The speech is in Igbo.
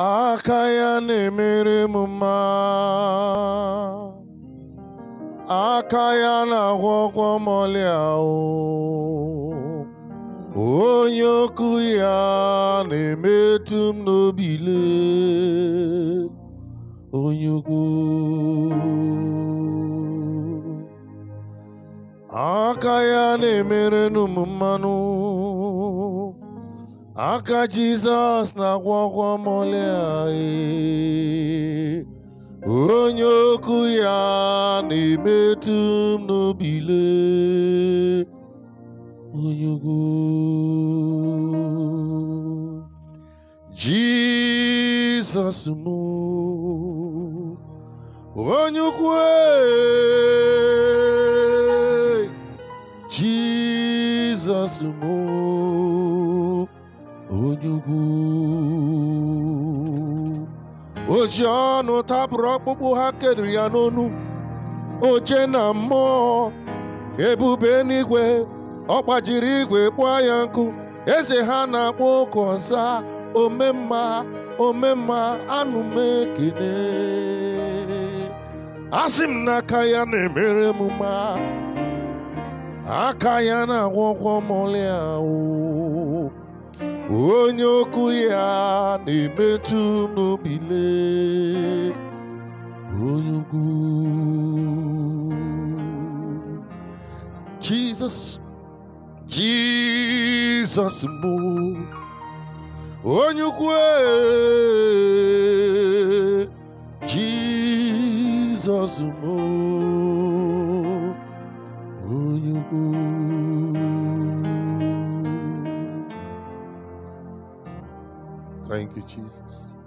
aka ya na-emere m mma aka ya na-agwọ ọgwọ mọlịa onye okwu ya na-emetụ m n'obile onye ukwu aka ya na-emerenụ m mmanụ Aka Jesus na na-agwọgwọ mọlị anyị onye okwu ya metum emetu m n'obile onye Jesus mo m Jesus mo. onye ukwu o ọnụ ọkpụkpụ ha keduru ya n'onu oche na mmụọ ebube n'igwe ọ igwe kpụọ ya nkụ eze ha na-akpọ oke ọsa omemma omemma anụmekene asị m na aka ya na-emere m aka ya na-agwọkwọ mọlịa ahụ Oku ya ni metu m n'obile onye Jesus Jizọs Jizọs mbụ onye ukwu Jizọs mbụ onye Thank you, Jesus.